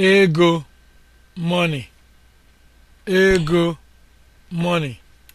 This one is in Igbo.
ego money ego money